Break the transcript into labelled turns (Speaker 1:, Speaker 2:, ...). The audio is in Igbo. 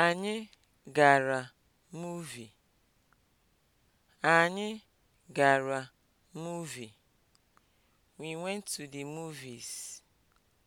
Speaker 1: Anyị gara movie Anyị gara
Speaker 2: movie We went to the movies.